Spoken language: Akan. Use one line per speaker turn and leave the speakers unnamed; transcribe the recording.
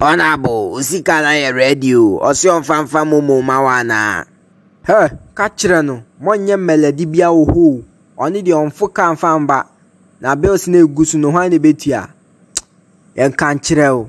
Ona bo usika na ya radio osio mfamfa mumu mawana.
He, kachire no, monye meledi bia oho. Oni de onfo kan famba. Na bills na egusu no hwan na betua. Yen kan o.